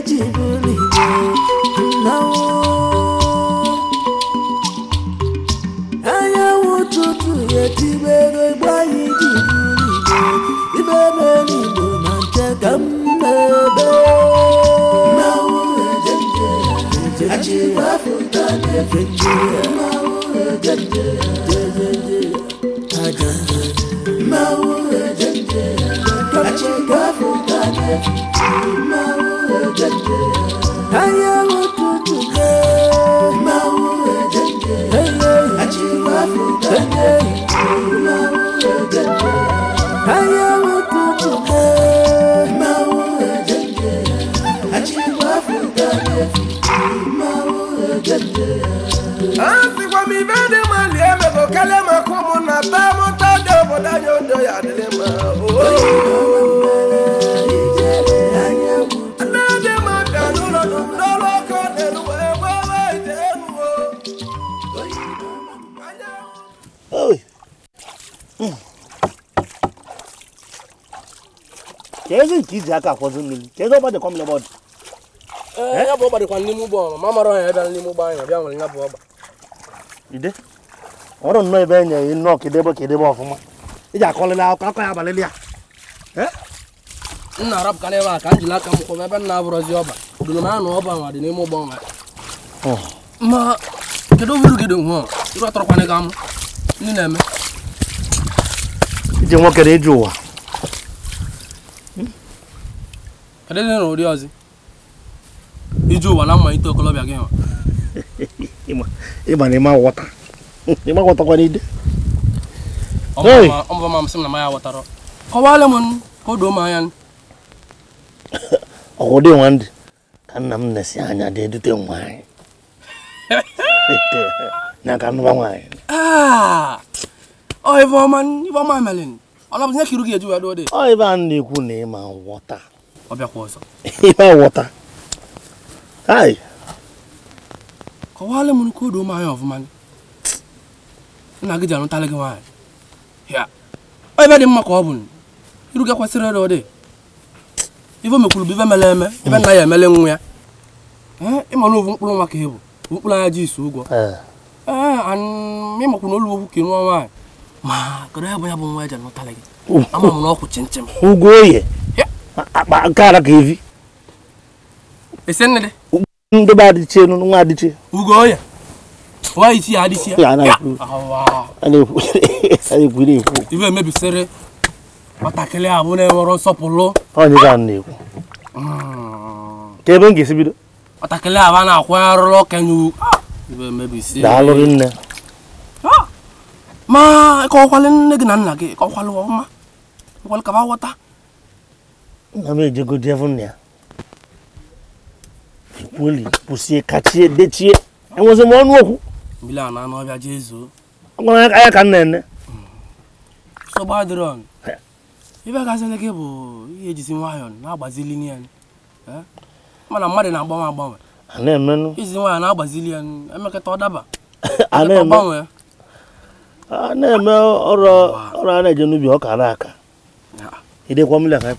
Mau e anyanwụ ụtụtụ etibego igbo anyị jibulite ibe n'eluigbo na nche ka m na-ebe achịgbafụta na-efe nje aja mmanwụ ejenje achịgbafụta na-efe nje da da da. rồi kezi nkizi aka akwazi mmiri kezi ọba dịkwa m n'ọbọdụ ya bụ ọba dịkwa n'ime ugbo ọrụ ma mara ọnya ebe n'ime ugbo anya bịa nwere ya bụ ọba ide ọrụ nnọọ ebe enye ya nnọọ kedebe kedebe ọfụma iji akọlịla akọ akọ ya abalị ya nna arapụkana ebe a ka m jiri aka m kwụm ebe nna abụrụzi ọba dụrụ m anụ ọba nwa dị n'ime ugbo ọnwa ma kedu uru gị dị nwa ịrụ atọrọkwana gị amụ Ini na-eme. Ije nwoke na ije ụwa. Kedụ ndị n'ụdị ọzọ? Ije ụwa na mmalite okolobịa gị nwa. Ịma na ịma ghọta. Ịma ghọtakwa n'ide. Ọmụba ma m sị m na ya m ya ghọtara. Kọwaala m n'aka nnụba nwaanyị na ga dị ọ m odo ọfụma nna gị ji arụtalị gị nwaanyị ebe dị mma ka ọ bụ iru gị kwesịrị ịrụ dị ife mekwuru bụ ife mere eme ife nna ya emele nwa ya ịma na mkpụrụ nwa ka ị bụ mkpụrụ anya ji ụgwọ ịmakwa na olu okwu nwa nwaanyị ma kedu ya bụ ya bụ nwa eji anụtala gị oh, ama oh. m na ọkwụ chinchin ụgwọ oye akpa nke ara ka evi esi nne dị ndobe adịchie nwa adịchie ugo oye nwa ya adịchie e ya na na ekwu ibe emebisiri nwatakịrị abụ na-enwere nsọpụrụ onye ka na-ekwu ka ah. ebe m ga-esi bido nwatakịrị abụ a na daalụ gị nne ma kọwalị nne gị na nna gị kọwalụ ọma kọwalụ ka ghọta nna m ejegodi efu nna ya kweli kwụsie kachie dechie enwezi m ọnụ okwu mbili a na anụ ọbịa jee zuo gwara ya ka nna ene sogbadron ibe gazili gị bụ ihe ejizi nwayọọ na-agbazili nye mana mmadụ na-agbanwe agbanwe a na izi nwaanyị na-agbazili ya emekata ọ daba a na-eme a na-eme ọrụ a na-eje n'ubi ọka na-aka idekwa mmiri aka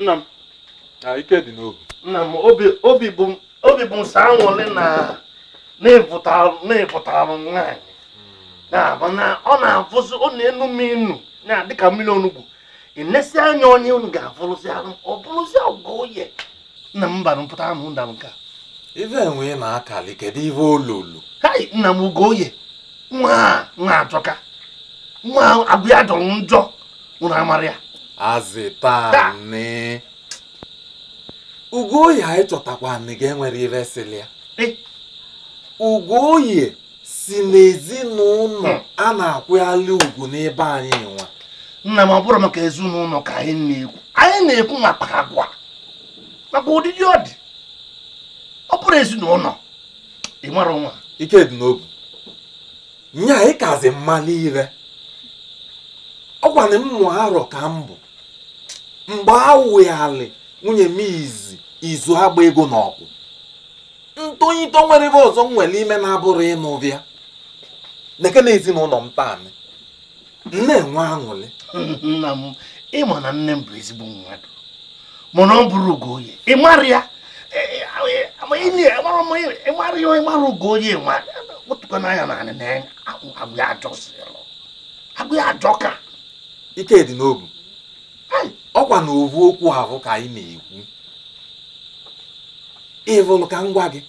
nna m ah, ike dị n'obi nna m obi bụ nsọ anwụlị na na-evụtara nwaanyị hmm. na ọ na-avụzi ọ na-enu m inu na dịka mmiri onugbu enesi anya onye unu ga-avụrụzi arụ ọ bụrụzi ọgụ oye nna m bara mpụta anụ nda m nka ife enwe na-akali kedu ife olulu hai nna m ugo oye nwa a nwa ajọka nwa agụ ya jọrọ njọ ụra mara ya azịtanị ugoyi anyị chọtakwa nị ga-enwere iresili ya ugoyi si n'ezinụlọ hmm. a na-akwụghali ugwu n'ebe anyị nwa nna m ọ bụrụ maka ezinụlọ ka anyị na-ekwu anyị na-ekwu maka agwa maka ụdịdị ọ dị ọ bụrụ ezinụlọ ị mara nwa ike dị n'obu nya anyị kazi mmalị ire ọgwana mmụ arọ ka m bụ mgbe a awụghali nwunye m izi izu agba ego n'ọkụ ọgwụ ntonyito nwere ebe ọzọ nwere ime na-abụrụ ịnụ bịa neke na ezinụlọ m taanị na-enwe aṅụrị nna m ịma na nne m bụ ezigbo mmadụ mana ọ bụrụ Ugoye ịmara ya ịmara ya ịmara Ugoye wetụkwa n'anya naanị na agwụ ya ajọ ka ike dị n'obu ọkwa na ovu okwu ahụ ka anyị na-ekwu ịvụlụ ka ngwa gị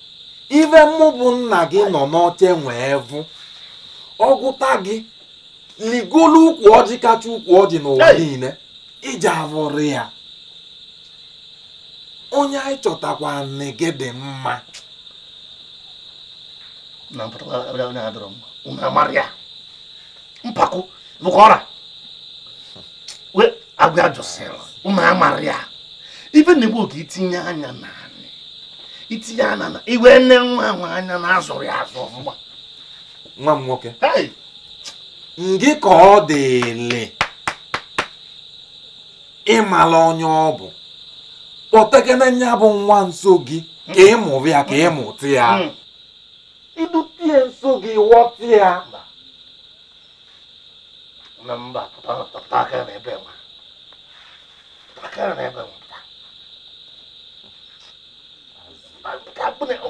ive mụ bụ nna gị nọ n'oche nwee vụ ọgụta gị ligolu ukwu ọjị kacha ukwu ọjị n'ụwa niile iji avụrụ ya onye anyị chọtakwa nne gị dị mma mpako agwụ ya jụsịrị ụmụ ya a ya ife na-egbu oge itinye anya na itinye anya na iwe nne nwa nwa anya na azụrụ azụ mgba nwa m nwoke ngị ka ọ dịle ịmala onye ọ bụ kpọtegene ya bụ nwa nso gị ka mụrụ ya ka ị ịmụtụ ya ibutie nso gị ghọtụ ya mba mba pụta aka n'ebe nwa bacana, né, mano. Tá boneco.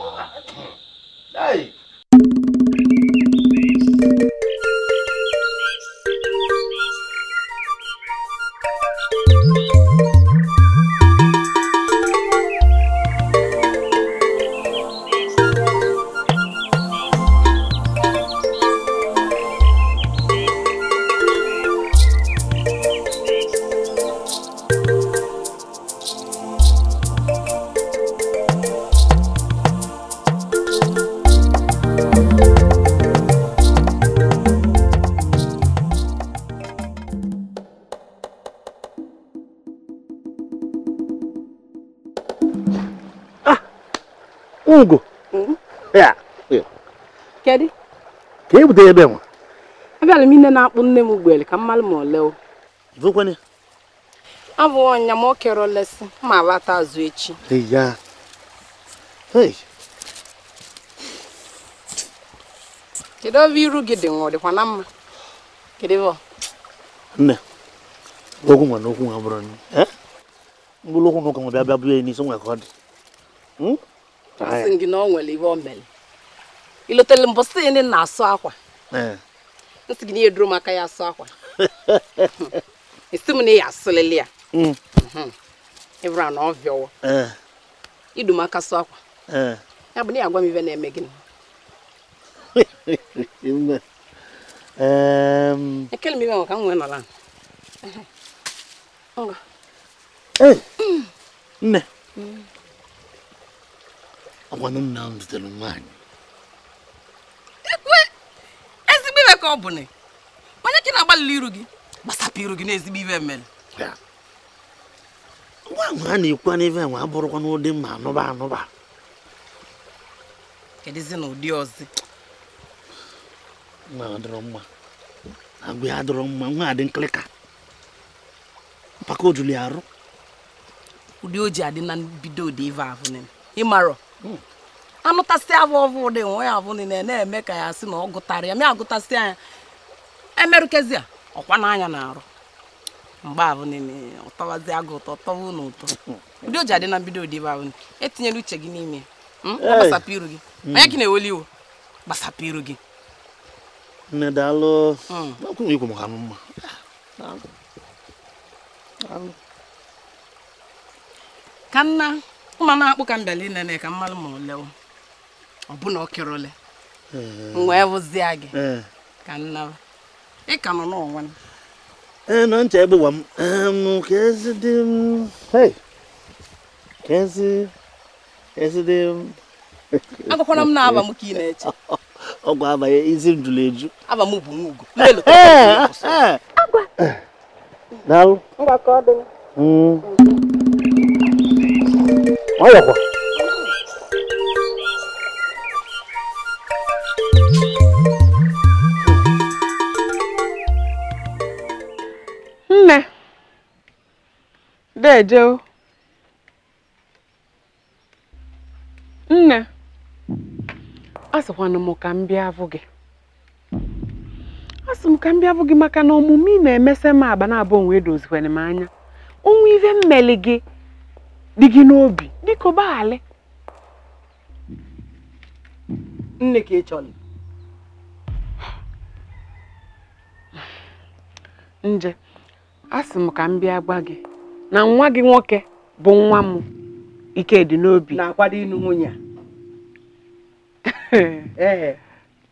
Aí. Kedu? Ka e ebe nwa? m na-akpụ nne m ugbele ka mmalụ ma ole. Zụkwanye? Abụ ọnya ma o olesi ma lata azụ echi. Ya. Kedu ebe iru gị dị nwa ọ dịkwa na mma? ọ? Nne, okwu nwa na okwu nwa bụrụ okwu na ụka nwa bịa bịa ọ dị. Hmm? asị gị na ọ nwere iwe o mere ilotere mbụ sị ndị na-asụ akwa nsị gị na ihe duru m aka ya asụ akwa esi m na ya asụlịlị mm. mhm. ya ịbụra na ọ vịọwa idu m aka sụ akwa ya bụ na ya agwa m ibe na-eme gị ekele m ibe nwe m nwee nọla nne mm. ọgwanụ nna m zutere nwaanyị ekwe ezigbo iwe ka ọ bụ na onye ka na-agbalịla iru gị gbasapụ iru gị n'ezigbo ezigbo mere ngwa ahụ a na-ekwu n'ive nwa abụrụkwa n'ụdị mma anụba anụba kedụzi na ụdị ọzọ nwa adịrọ mma ya adịrọ mma nwa adị nkịlịka mpaka arụ ụdị o ji adị na mbido ụdị ive ahụ ịmarọ anụtasị avụ ọvụ ụdị nwe ya avụ niile na-eme ka ya sị na ọ gụtara ya mịa agụtasị anya emerụkezi ya ọkwa n'anya na-arụ mgbe abụ niile ụtọwazi agụ ụtọ tọwa na ụtọ ụdị oji adị na mbido ụdị ibe ahụ etinyela uche gị n'ime hmm? ọ gbasapụ iru gị hmm. onye gị na-eweli iwu gbasapụ iru gị nne daalụ hmm. ka nna mmanụ akpụ ka m bịara ka mmanụ ma ole ọbụna ọkịrị ole m wee bụzia gị eh. ka nnaba ị ka nọ n'onwe m ee eh, nọ ncha egbuwa m m ka ezi m na-aba m ka ị na-eche ọgwụ izi m jụrụ eju aba m nwayọkwa nne dejeo nne a m ka m bịa gị a m ka m bịa gị maka na ọmụmụ ị na-emesa m agba na abụ onwe dozikwana m anya onwe ife mmeli gị dị gị n'obi biko gbaghara nne ka ị chọrọ nje a sị m ka m bịa gwa gị na nwa gị nwoke bụ nwa m ike dị n'obi na-akwado ịnụ nwunye a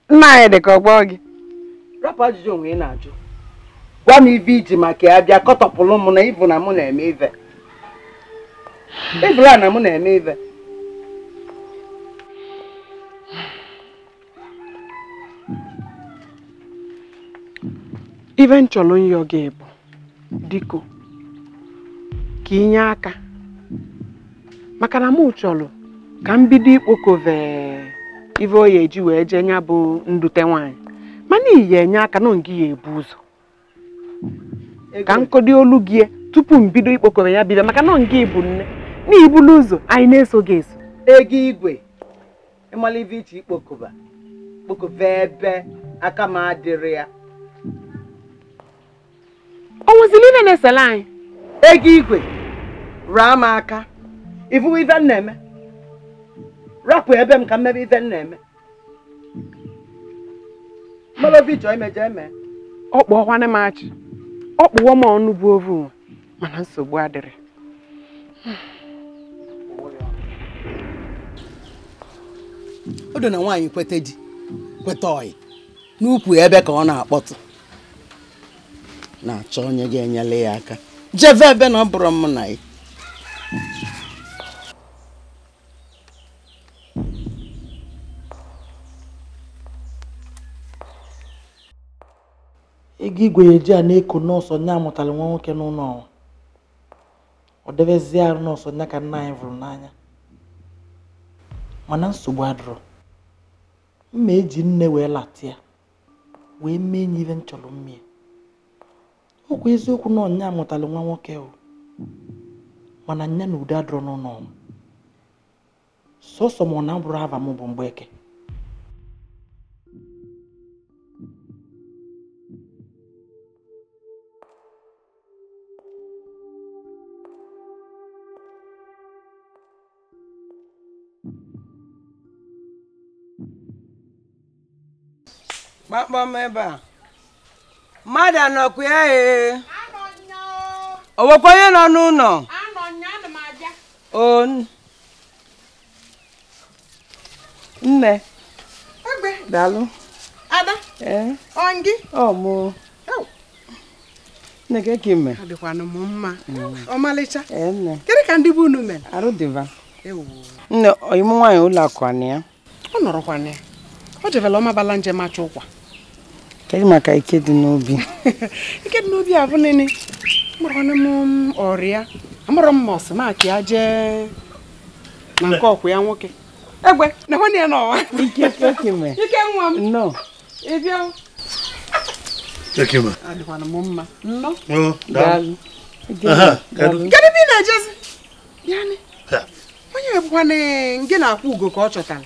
nna anyị dị ka gbọọ gị rapụ ajụjụ onwe ị na-ajụ gwa m ibe iji maka ya bịa kọtọpụlụ m na ịbụ na mụ na-eme ive ebula na mụ na-eme ibe ibe m gị bụ diko ka inye aka maka na mụ chọrọ ka mbido bido ikpokove ibe oyi eji wee jee nya bụ ndute nwaanyị mana iyi enye aka na ngị ya ebu ụzọ ka nkọdo olu gị tupu m bido ikpokove ya bido maka na ngị bụ nne n'ibulu ụzọ anyị na-eso gị eso ego igwe ibe iche ikpokoba kpokoba ebe aka m adịrị ya ọ nwụziri ile na-esela anyị ego igwe raa m aka ivuwe ive m eme rapụ ebe m ka mmebe ive m na-eme malovi chọọ imeje eme ọ kpụọkwana m achị ọ kpụwo m ọnụ bụ ovu mana nsogbu adịrị o na nwaanyị kweta di kweta ọyị n'ukwu ebe ka ọ na-akpọtụ na-achọ onye ga-enyere ya aka jeve ebe na ọ bụrụ mụ na ya ego igwenye ji a na-eko nọọsụ onye amụtara nwa nwoke n'ụlọ ọnwa ọ debezie arụ nọọsụ onye ka nna anyị vụrụ n'anya mana nsogbu adụrụ mma eji nne wee latia wee mee nye ihe m chọrọ mmiri ọkwa eziokwu na ọnya mụtara nwa nwoke o mana nya na ude adọrọ n'ụlọ sọsọ m ọ na bụrụ ava m bụ eke. kpamkpam ebe a mmadụ anọkwa ya ee o nwekwa onye nọ n'ụlọ o nne daalụ ada ee ọngị ọ mụ nne gị ka ime adịkwanụ m mma ọmalịcha kedụ ka ndị bụ unu mere arụ dịva nne ọyịmụ nwaanyị ụlọ akụ ya ọ nọrọkwa ya o jebela ọmabala njem achọ ụkwa kedu maka ike dị n'obi ike dị n'obi abụ nene mụrụnụ m ọrịa amụrụ m ọsị maka ya jee na nke ọkwụ ya nwoke egbe na nwanne ya n'ọwa ike nọ ịbịa m ị na-ejezi onye ebụkwana gị na-akwụ ugo ka ọ chọtara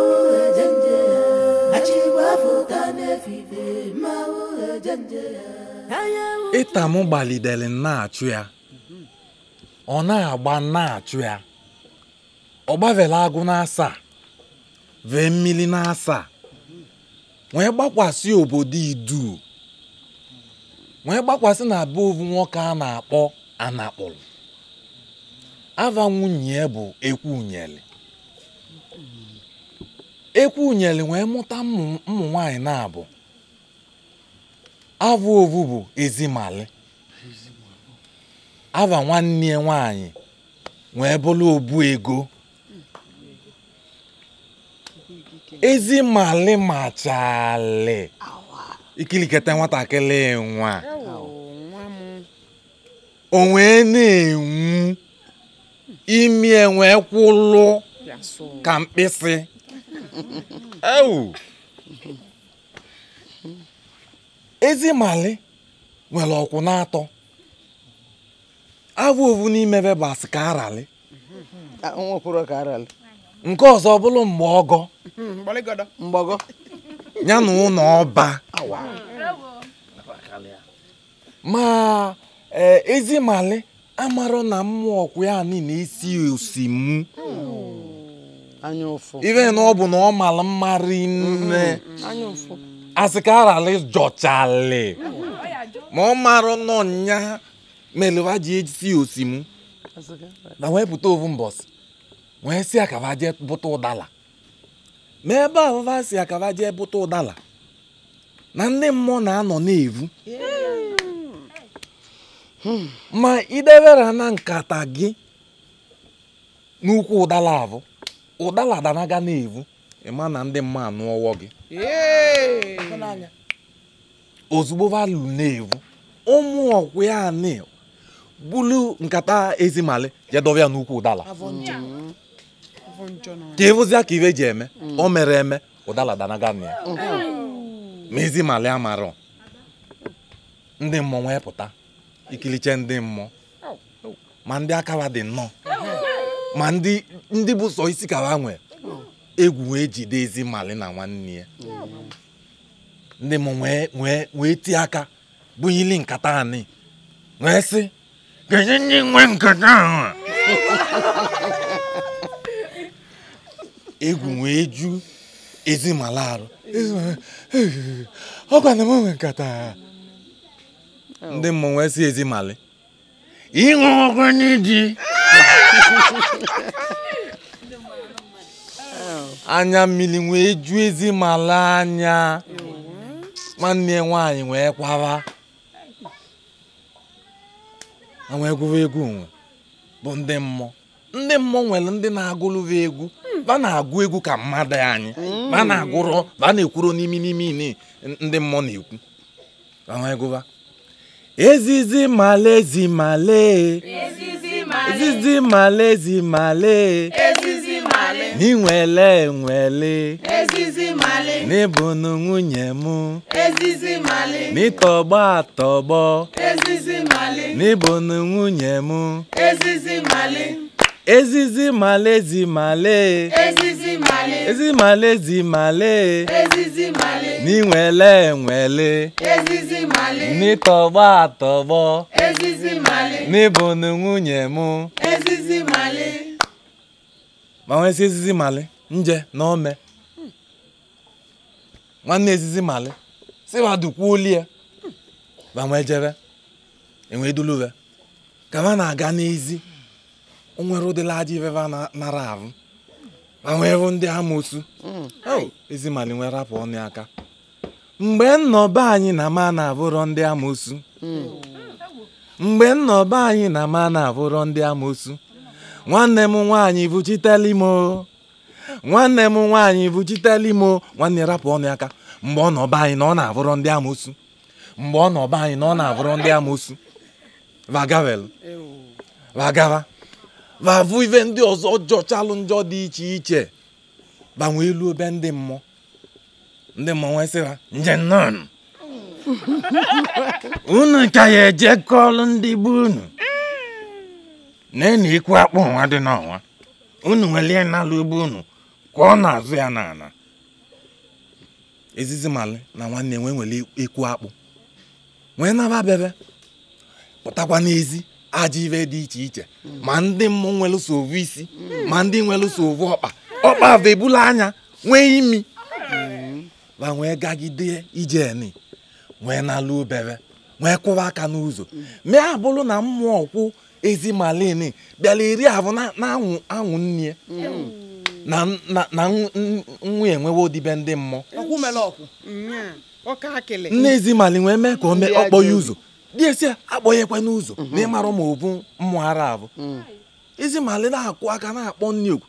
m gbalidere na-achụ ya ọ na-agba na-achụ ya ọ gbavela agụ na-asaa vee mmiri na asa wee gbakwasị obodo idu wee gbakwasị na be ovu nwoke a na-akpọ anakpụrụ ava nwunye bụ ekwu ekwunyere ekwunyere wee mụta ụmụ nwanyị na-abụ avụ ovu bụ ezimali ava nwanne ya nwanyị wee bụrụ obu ego ezimali machali ikilikata nwatakịrị nwa o na-enwu imi e wee kwụlụ ka mkpịsị ewu nwere ọkwụ na-atọ abụ ovu n'imebe bụ asị ka arali nke ọzọ ọ bụrụ mgbe ọgọ ya na ụlọ ọba ma e, ezi mali amarọ na mmụọ ọkwụ ya niile isi osimụ ife na ọ bụ na ọ mara mma rinne asị ka arali jọchali ma ọ marụ nọ nya melewa ji esi osimu na wee pụta ovu mbọsị wee si akaba jee bụta ụdala ma ebe ahụva si akaba jee bụta ụdala na ndị mmụọ na-anọ na-evu hmm. ma idebere na nkata gị n'ukwu ụdala abụ ụdala na na-evu ịma na ndị mma anụ gị ozugbo valu na-evu ụmụ ọkwụ ya bulu nkata ezimali jedovia n'ukwu ụdala ka ịvụzia ka ive ji eme o mere eme ụdala danaga na ya ma ezimali amarọ ndị mmụọ wee pụta ikiliche ndị mmụọ ma ndị akawa dị nnọọ ma ndị bụ sọ isi ka ha nwee egwu wee jide ezi mali na nwanne ya ndị m wee tie aka bunyili nkata anyị wee sị kedu ndị nwee nkata ahụ egwu wee ju ezimala arụ ọ gwana m nwe nkata ndị mmụọ wee sị ezimali ịṅụ ọkụ n'iji anya mmiri wee ju ezi mala anya nwanne ya nwaanyị wee kwara wee gụrụ egwu nwe bụ ndị mmụọ ndị mmụọ nwere ndị na-agụrụrụ egwu ba na-agụ egwu ka mmadụ anyị ba na-agụrụ ba na-ekwuru n'imi n'imi ndị mmụọ na-ekwu wee gụba Ezizi malezi male. Ezizi male. Ezizi malezi male. Ezizi male. N'inwele nwele. Ezizi male. N'ịbụnụ nwunye m. Ezizi male. N'ịtọgbọ atọgbọ. Ezizi male. N'ịbụnụ nwunye m. Ezizi male. Ezizi malezi male. Ezizi male. Ezizi malezi male. Ezizi male. n'inwele enwele ezizi mali n'ịtọgbọ atọgbọ ezizi mali n'ịbụnụ nwunye mụ. ezizi ma nwesị ezizi mali nje na ome nwanne ezizi mali si wadukwuo oli ya ma nwee jebe enwee duluwe ka ma na-aga n'ezi onwere ụdịla aja na nara ahụ ma nwee bụ ndị amosu mm. oh, mali nwere rapụ ọnụ aka mgbe nnọba anyị na ma na-abụrọ ndị amoosu mgbe anyị na ma na-abụrọ ndị nwanne m nwaanyị bụchitelimo nwanne m nwaanyị bụchitelimo nwanne rapụ ọnụ mgbe ọ nọba anyị na ọ na-abụrọ ndị amoosu mgbe ọ nọba anyị na na-abụrọ ndị amoosu vagavel ndị ọzọ jọchalụ njọ dị iche iche banwe elu obe ndị mmụọ ndị mmọnwụ e sị ha nje nnọọ unu ka ya eje kọọlụ ndị be unu na-enu ikwu akpụ nwa dị n'ọnwa unu nwelie n'ala ugbo unu ka ọ na-azụ ya n'ala ezizi mali na nwanne nwee nwere ikwu akpụ nwee naba bebe pụtakwa n'ezi aja ibe dị iche iche ma ndị mmụọ nwere sovu isi ma ndị nwere sovu ọkpa ọkpa bụ ebula anya nwee imi wa wee gagide ijeni wee nalụ obere wee kwụwa aka n'ụzọ mm. mee abụrụ na mmụọ kwụ ezi malini bịara eri ahụ na-anwụ anwụ nne mm. na nwa enwewo odibe ndị mmụọ nne ezi mali wee mee ka ọ kpọọ ya ụzọ dị esi akpọghekwe n'ụzọ na ịmarụ ma ọ bụ mmụọ ara abụ mm. ezi mali na akwụ aka na-akpọ nne okwu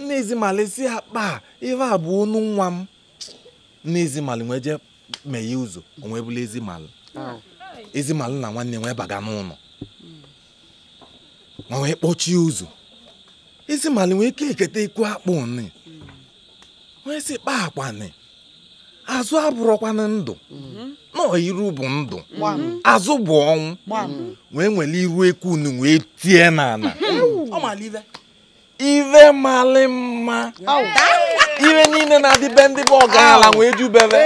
nne ezi mali si akpa ife abụ ọnụ nwa m n'ezimalụ nwee jee meghe ụzọ onwe bụla ezimali ezimalụ na nwanne nwee baga n'ụlọ ma nwee kpọchie ụzọ ezimali nwee ike eketa ikwu akpụ ni nwee si kpa akwa ni azụ abụrọkwana ndụ nọọ iru bụ ndụ azụ bụ ọnwụ wee nwere iru eku unu wee tie n'ala ive malị mma ihe niile na-adịbe ndị bụ ọgaranya nwee jubere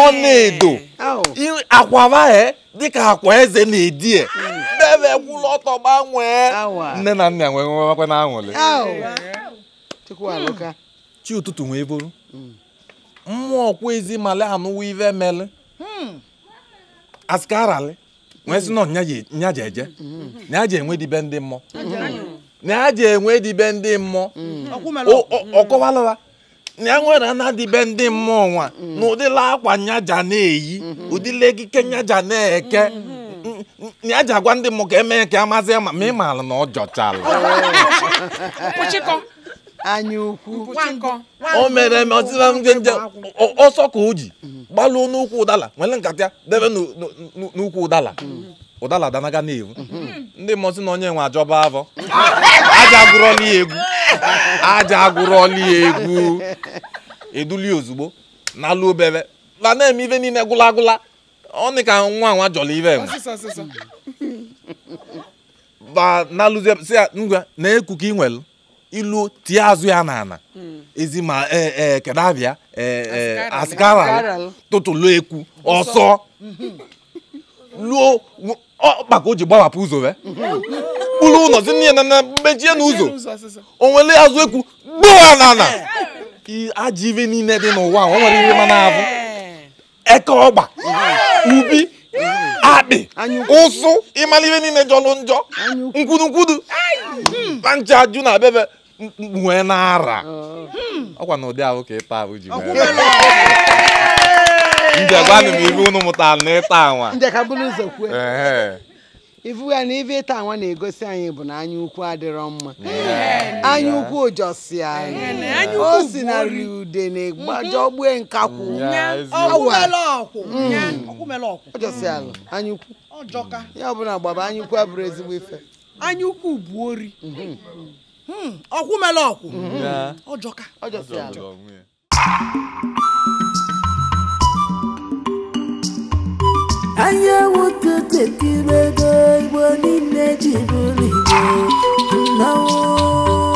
ọ na-edo akwara e, dịka akwa eze na-edie bebe gwụlụ ọtọ gbanwee nne na nna nwere nwewakwa na aṅụrị chi ụtụtụ wee bụrụ mmụọ ọkwa ezi male anụwa ive nyaji eje mm-hmm. ndị mmụọ na ya ji enwe dibe ndị mmụọ mm. ọkọwalụwa na ya nwere ana dibe ndị mmụọ nwa mm. na ụdịla akwa nyaja na-eyi mm-hmm. ụdịla ekike nyaja na-eke ya mm-hmm. ji agwa ndị mmụọ ka emee ka amazie ma ma ị maara na ọ jọchala o mere ọsịa ndị nje ọsọ ka o ji gbalụọ n'ukwu ụdala nwere nkata debe n'ukwu ụdala mm. ụdala na-ewu mhm. mm. ndị mmụọ sị na onye nwe ajọba avọ aja agụrọla ya egwu aja agụrọla ya egwu eduli ozugbo na-alụ n'alụ obere la na-eme ife niile gwụla agwụla ọ dị ka nwa nwa jọla ibe nwe ba n'alụzie si ngwa na-ekwu ka ị nwere ilu tie azụ ya n'ala mm. ezi ma ee e, kedu abịa ee asikara tụtụlụ ekwu ọsọ mhm. luo ọkpa ka o ji gbawapụ ụzọ wee kpụrụ ụlọ dị nne na na mechie n'ụzọ o nwere azụ ekwu gbuo n'ala ajọ ibe niile dị n'ụwa o nwere ihe mana abụ eke ọgba ubi akpị ụsụ ịmara ihe niile jọrọ njọ nkwudukwudu na ncha ajụ na bebe nwee n'ara ọkwa na ụdị ahụ ka ịta ahụ ji njegwanụ m ife unu mụtara na ịta anwa njekabụrụ ụzọ kwue ifu ya na ife ịta anwa na-egosi anyị bụ na anya ukwu adịrọ mma anya ukwu ụjọsi anyị o si na ri ude na egbaje ogbue nkakwụ ụjọsi ala anya ukwu ya ọbụla gbaba anya ukwu abụrụ ezigbo ife anya ukwu bụ ori mhm. hmm, ọkwụ mele ọkwụ ọjọka ọjọsi ala anyanwụ totekibego igbo niile ji bụrụ igbo nnawo